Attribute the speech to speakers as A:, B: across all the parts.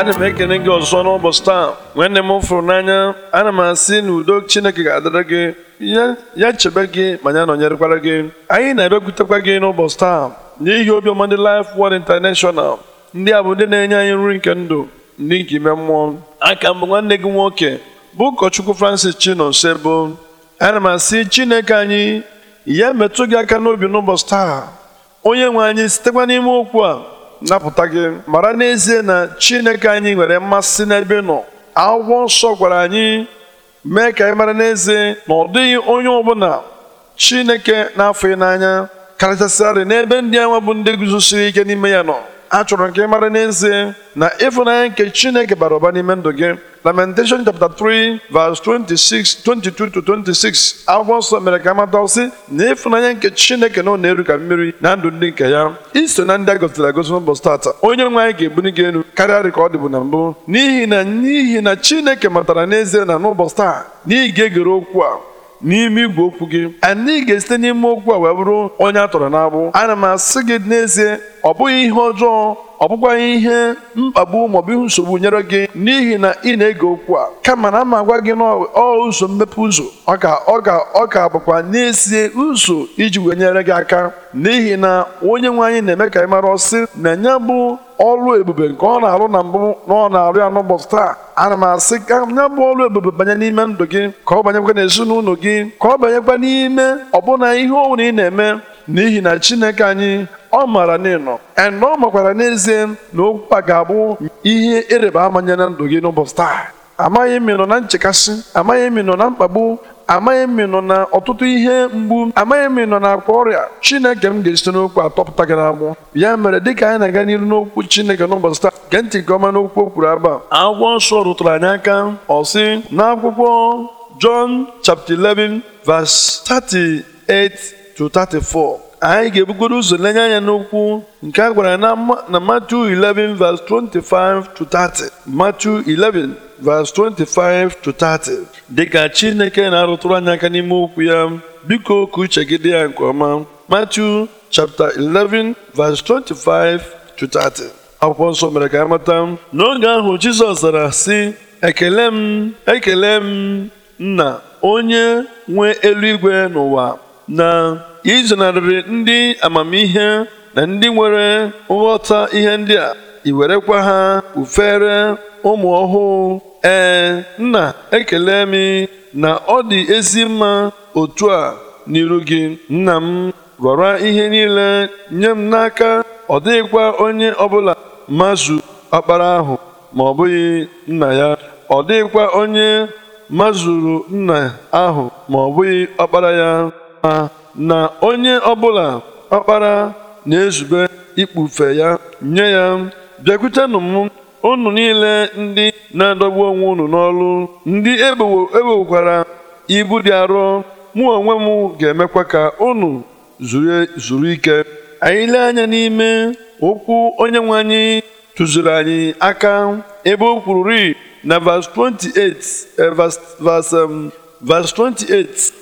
A: ana m ekene gị ọzọ n'ụbọchị taa nwanne m fụrụ n'anya ana m asị na udo chineke ga-adịrị gị ya chebe gị ma ya nọnyerekwara gị anyị na-abịakwutekwa gị n'ụbọchị taa n'ihi obiọma ndị Life Word International ndị a bụ ndị na-enye anyị nri nke ndụ ndị nke ime mmụọ aka mbụ nwanne gị nwoke bụ ụkọchukwu Francis Chinonso ana m asị chineke anyị ya metụ gị aka n'obi n'ụbọchị taa onye nwe anyị sitekwa n'ime okwu a napụta gị mara n'ezie na Chineke anyị nwere mmasị n'ebe nọ agwọ nsọ gwara anyị mee ka anyị mara n'ezie na ọ dịghị onye ọbụla Chineke na-afọ n'anya karịchasịarị n'ebe ndị anwa bụ ndị guzosiri ike n'ime ya nọ achọrọ nke mara n'ezie na ịfụnanya nke chineke bara ụba n'ime ndụ gị lamentation chapter 3 verse 26 22 to 26 akwụkwọ nsọ mere ka amata sị na ịfụnanya nke chineke na ọ na-eru ka mmiri na ndụ ndị nke ya iso na ndị a gosiri agosi n'ụbọchị tata onye nwe anyị ga-ebuli gị elu karịa ka ọ dịbụ na mbụ n'ihi na n'ihi na chineke matara n'ezie na n'ụbọchị taa na ga-egere okwu a n'ime igwe okwu gị anyị ga-esite n'ime okwu a wee bụrụ onye a tọrọ n'agbụ ana m asị gị n'ezie ọ bụghị ihe ọjọọ ọ bụkwaghị ihe mkpagbu maọbụ ihe nsogbu nyere gị n'ihi na ị na-ege okwu a kama na ma agwa gị nọ ụzọ mmepe ụzọ ọ ka ọ ka ọ ka bụkwa n'ezie ụzọ iji wee nyere gị aka n'ihi na onye nwe anyị na-eme ka anyị mara ọsị na enye bụ ọrụ ebube nke ọ na-arụ na mbụ na ọ na-arụ ya n'ụbọchị taa ana m asị ka ya bụ ọrụ ebube banye n'ime ndụ gị ka ọ banyekwa n'ezinụlọ gị ka ọ banyekwa n'ime ọbụna ihe ọ ị na-eme n'ihi na Chineke anyị ọ maara na ịnọ na ọ makwara n'ezie na okwu a ga-abụ ihe ịrịba ama nye na ndụ gị n'ụbọchị taa amaghị m ịnọ na nchekasị amaghị m ịnọ na mkpagbu amaghị m ịnọ na ọtụtụ ihe mgbu amaghị m ịnọ na akwa ọrịa Chineke m ga-esite n'okwu atọpụta gị n'agbụ ya mere dịka anyị na-aga n'iru n'okwu Chineke n'ụbọchị taa gee ntị nke ọma n'okwu o kwuru aba akwụkwọ nsọ rụtụrụ anyị aka ọ sị n'akwụkwọ Jọn chapter 11 verse 38 234 anyị ga-ebugoro ụzọ lenye anya n'okwu nke a gwara na Matthew 11 25 30 Matthew 11 25 30 dịka Chineke na-arụtụrụ anya aka n'ime okwu ya biko ka uche gị dị ya nke ọma Matthew chapter 11 verse 25 30 akwụkwọ nsọ mere ka amata n'oge ahụ Jizọs zara sị ekele m ekele m nna onye nwe eluigwe n'ụwa na izenarịrị ndị amamihe na ndị nwere nghọta ihe ndị a iwerekwa ha ufere ụmụ ọhụụ ee nna ekele m na ọ dị ezi mma otu a n'iru gị nna m rọrọ ihe niile nye m n'aka ọ dịghịkwa onye ọbụla mazu ọkpara ahụ ma ọ bụghị nna ya ọ dịghịkwa onye nna ahụ ma ọ bụghị ọkpara ya ma na onye ọbụla ọkpara na-ezube ikpufe ya nye ya bịakwutenụ m unu niile ndị na-adọgbu onwe unu n'ọlụ ndị ebewokwara e ibu dị arọ mụ onwe m ga-emekwa ka unu zuru ike anyị lee anya n'ime okwu onye nwe anyị tụziri anyị aka ebe o kwuru ri na verse 28 eh, verse 28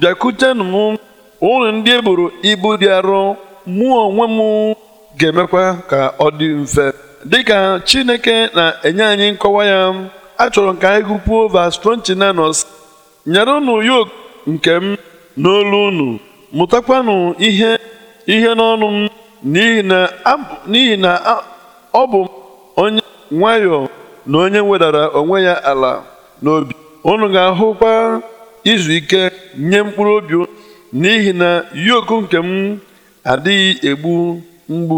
A: bịakutenụ m unu ndị e buru ibu dị arọ mụ onwe m ga-emekwa ka ọ dị mfe dịka Chineke na-enye anyị nkọwa ya a chọrọ ka anyị gụpuo vas 29 nyere unu yok nke m n'olu unu mụtakwanụ ihe ihe n'ọnụ m n'ihi na ọ bụ onye nwayọọ na onye wedara onwe ya ala n'obi unu ga-ahụkwa izu ike nye mkpụrụ obi n'ihi na yoku nke m adịghị egbu mgbu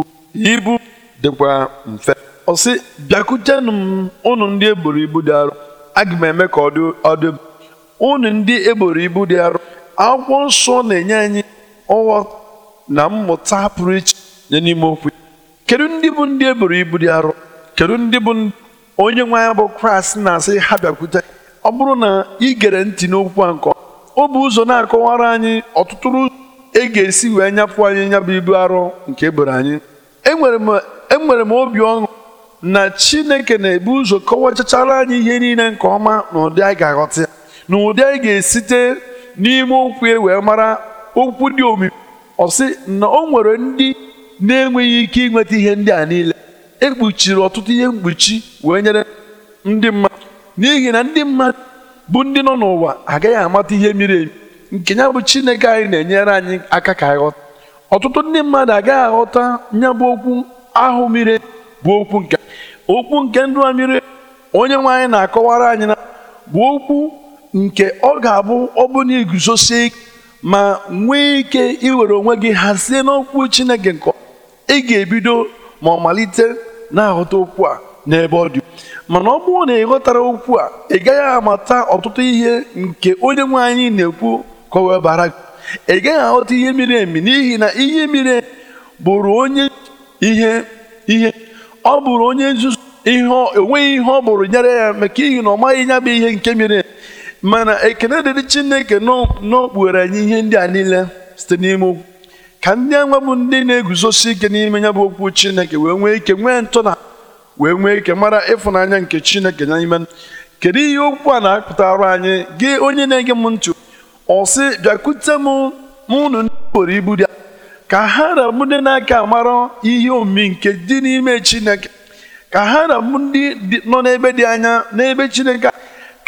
A: ibu dịkwa mfe ọ sị bịakutenụ m ụnụ ndị eboro ibu dị arụ aga m eme ka ọ dị ọdụ ndị eboro ibu dị arụ akwụkwọ nsọ na-enye anyị nghọta na mmụta pụrụ iche nye n'ime okwu kedu ndị bụ ndị eboro ibu dị arụ kedu ndị bụ onye nwe anyị bụ kraịst na-asị ha bịakwute ọ bụrụ na ị gere ntị n'okwu a nke ọ bụ ụzọ na-akọwara anyị ọtụtụ ụzọ e ga-esi wee nyapụ anyị nyabụ ibu arọ nke eboro anyị enwere e m obi ọṅụ na chineke na-ebu ụzọ kọwachachara anyị ihe niile nke ọma na ụdị anyị ga-aghọta ya na ụdị anyị ga-esite n'ime okwu e wee mara okwu dị omimi ọ na o nwere ndị na-enweghị ike inweta ihe ndị a niile ekpuchiri ọtụtụ ihe mkpuchi wee nyere ndị mmadụ n'ihi na ndị mmadụ bụ ndị nọ n'ụwa agaghị amata ihe miri emi nke ya bụ chineke anyị na-enyere anyị aka ka ghọta ọtụtụ ndị mmadụ agaghị aghọta ya bụ okwu ahụ miri bụ okwu nke okwu nke ndụ a onye nwe anyị na-akọwara anyị na bụ okwu nke ọ ga-abụ ọbụna iguzosie ma nwee ike iwere onwe gị hazie n'okwu chineke nke ị ga-ebido ma ọ malite na-aghọta okwu a n'ebe ọ dị mana ọ bụrụ na ị ghọtara okwu a ị gaghị amata ọtụtụ ihe nke onye nwe anyị na-ekwu bara ị gaghị aghọta ihe miri emi n'ihi na ihe miri emi bụrụ onye ihe ihe ọ bụrụ onye nzuzu ihe onweghị ihe ọ bụrụ nyere ya maka ihi na ọ maghị ya bụ ihe nke miri emi mana ekene dịrị chineke n'okpughere anyị ihe ndị a niile site n'ime okwu ka ndị anwa bụ ndị na-eguzosi ike n'ime ya bụ okwu chineke wee nwee ike nwee ntụna wee nwee ike mara ịfụnanya nke chineke n'ime kedu ihe okwu a na arụ anyị gị onye na-ege m ntụ ọ sị bịakwute m m unu ibu dị ka ha na m ndị na-aka mara ihe omi nke dị n'ime chineke ka ha na m ndị nọ n'ebe dị anya n'ebe chineke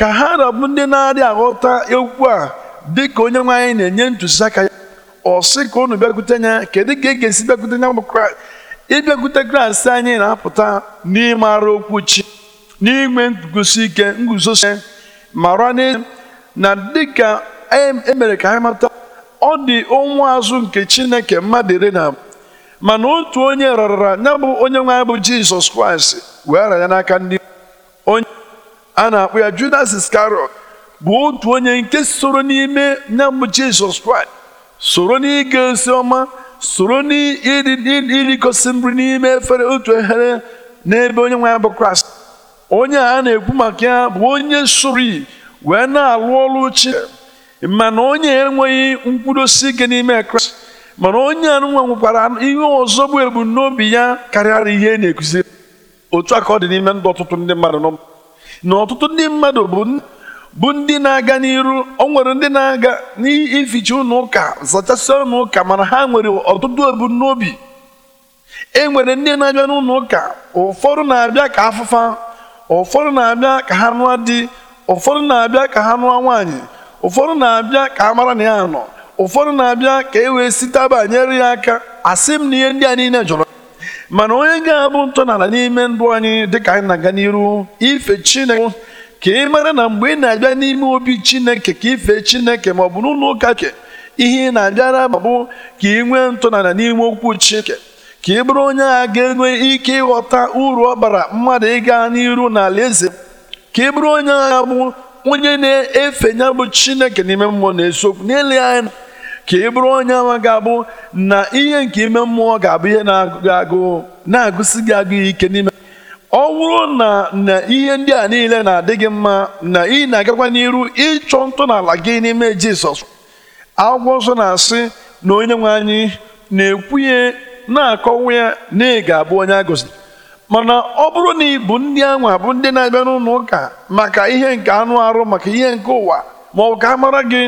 A: ka ha na m ndị na-adị aghọta okwu a dị ka onye nwe anyị na-enye ntụziaka ya ọ sị ka unu bịakwute ya kedu ka e ga-esi bịakwute ya bụ kraịst ịbịakwute Kraịst anyị na-apụta n'ịmara okwu chi n'inwe nguzosi ike nguzosi mara na dịka emere e ka anyị mata ọ dị ụmụ azụ nke Chineke mmadụ iri na mana otu onye rara ya bụ onye nwe anyị bụ Jizọs Kraịst wee rara ya n'aka ndị onye a na-akpọ ya Judas Iscariot bụ otu onye nke soro n'ime ya bụ Jizọs Kraịst soro n'ige ozi ọma soro n'irikosi nri n'ime efere otu ehere n'ebe onye nwe ya bụ kraịst onye a na-ekwu maka ya bụ onye sori wee na-alụ ọrụ chi mana onye enweghị nkwudosi ike n'ime kraịst mana onye a nwekwara ihe ọzọ bụ ebumnobi ya karịara ihe e na-ekụziri otu a ka ọ dị n'ime ndụ ọtụtụ ndị mmadụ na ọtụtụ ndị mmadụ bụ bụ ndị na-aga n'iru o nwere ndị na-aga n'ificha ụlọ ụka zachasịa ụlọ ụka mana ha nwere ọtụtụ ebumnobi e nwere ndị na-abịa n'ụlọ ụka ụfọdụ na-abịa ka afụfa ụfọdụ na-abịa ka ha nụọ di ụfọdụ na-abịa ka ha nụọ nwaanyị ụfọdụ na-abịa ka a mara na ya nọ ụfọdụ na-abịa ka e wee site banyere ya aka asị m na ihe ndị a niile jọrọ mana onye ga-abụ ntọala n'ime ndụ anyị dịka anyị na-aga n'iru ife Chineke ka ị mara na mgbe ị na-abịa n'ime obi chineke ka ife chineke ma ọ bụ n'ụlọ ụka ke ihe ị na-abịara ma bụ ka ị nwee ntụnala n'ime okwu chineke ka ị bụrụ onye a ga-enwe ike ịghọta uru ọ bara mmadụ ịga n'iru n'ala eze ka ị bụrụ onye agha bụ onye na-efe ya bụ chineke n'ime mmụọ na-esokwu n'eleghị anya ka ị bụrụ onye ama ga-abụ na ihe nke ime mmụọ ga-abụ ihe na-agụ na-agụsi gị agụ ike n'ime ọ bụrụ na na ihe ndị a niile na-adị gị mma na ị na-agakwa n'iru ịchọ ntọala gị n'ime Jizọs akwụkwọ nsọ na-asị na onye nwe anyị na-ekwunye na-akọwa ya na ị ga-abụ onye a mana ọ bụrụ na ị bụ ndị anwa bụ ndị na-abịa n'ụlọ ụka maka ihe nke anụ arụ maka ihe nke ụwa ma ọ bụ ka a mara gị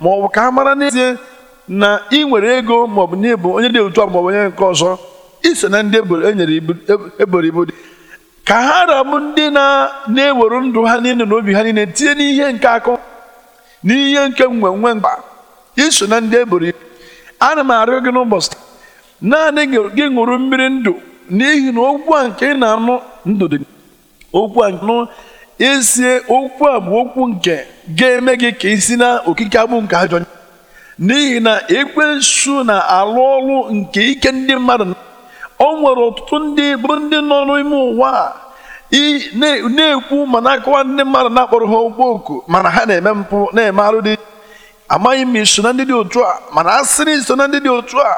A: ma ọ bụ ka a mara n'ezie na ị nwere ego maọbụ na onye dị otu a maọbụ onye nke ọzọ ise na ndị enyere e eboro e ibu dị ka ha haram ndị na-ewere ndụ ha niile na obi ha niile tinye n'ihe nke akụ n'ihe nke nwenwe mkpa iso na ndị eboro ibu ana m arịọ gị n'ụbọchị naanị gị ṅụrụ mmiri ndụ n'ihi na okwu a nke ị na-anụ ndụ dị okwu a nụ esie okwu a bụ okwu nke ga-eme gị ka isi na okike abụ nke ajọ n'ihi na ekwensu na-alụ ọrụ nke ike ndị mmadụ o nwere ọtụtụ ndị bụrụ ndị nọ n'ime ụwa na-ekwu ma na-akọwa ndị mmadụ na-akpọrọ ha okpo oku mana ha na-eme mpụ na-eme arụ dị amaghị m iso na ndị dị otu a mana asịrị iso na ndị dị otu a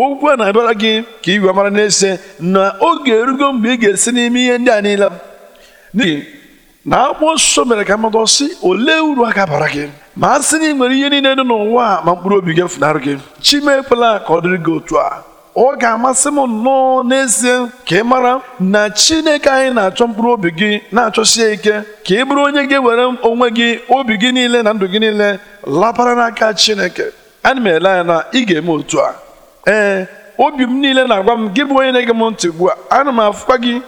A: okwu a na-abịara gị ka igwe mara na-ese na oge erugo mgbe ị ga-esi n'ime ihe ndị a niile n'ihi na akwụkwọ nsọ mere ka mmadụ sị olee uru a bara gị ma a sị na ị nwere ihe niile dị n'ụwa ma mkpụrụ obi gị funarị gị chima ekwela ka ọ dịrị gị otu a ọ ga-amasị m nnọọ n'ezie ka ị mara na Chineke anyị na-achọ mkpụrụ obi gị na-achọsie ike ka ị bụrụ onye gị ewere onwe gị obi gị niile na ndụ gị niile lapara n'aka Chineke ana m ele anya na ị ga-eme otu a ee obi m niile na-agwa m gị bụ onye na-ege m ntị ugbu a ana m afụkwa gị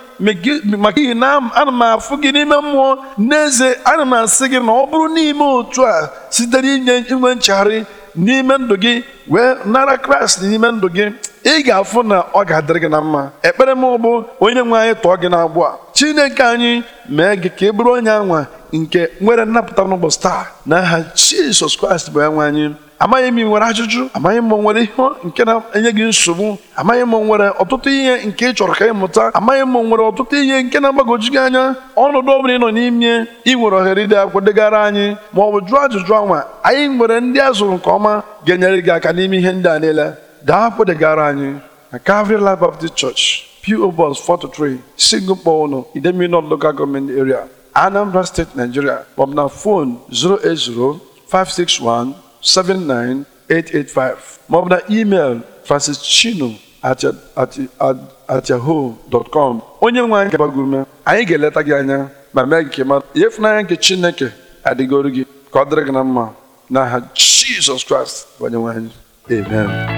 A: maka ihi na ana m afụ gị n'ime mmụọ n'ezie ana m asị gị na ọ bụrụ n'ime otu a site n'inye inwe nchegharị n'ime ndụ gị wee nara Kraịst n'ime ndụ gị ị ga-afụ na ọ ga-adịrị gị na mma ekpere m bụ onye nwe anyị tụọ gị n'agbụ a chineke anyị mee gị ka ị e bụrụ onye anwa nke nwere nnapụta n'ụbọchị taa na aha jizọs kraịst bụ anwe anyị amaghị m ị nwere ajụjụ amaghị m nwere ihe nke na-enye gị nsogbu amaghị m nwere ọtụtụ ihe nke ị chọrọ ka ị mụta amaghị m nwere ọtụtụ ihe nke na-agbagoju gị anya ọnọdụ ọ ị nọ n'ime ị nwere ohere ide akwụkwọ degara anyị ma ọ bụ jụọ ajụjụ anwa anyị nwere ndị a nke ọma ga-enyere gị aka n'ime ihe ndị a niile dapụ degara anyị na Calvary Life Baptist Church PO Box 43 Singapore no Idemili North Local Government Area Anambra State Nigeria maọbụ na fon 08056179885 maọbụ na email francis chino at onye nwe anyị gabagị anyị ga-eleta gị anya ma mee gị ma. ịmara ihe ịfụnanya nke chineke adịgoro gị ka ọ dịrị gị na mma n'aha jizọs kraịst onye nwe anyị amen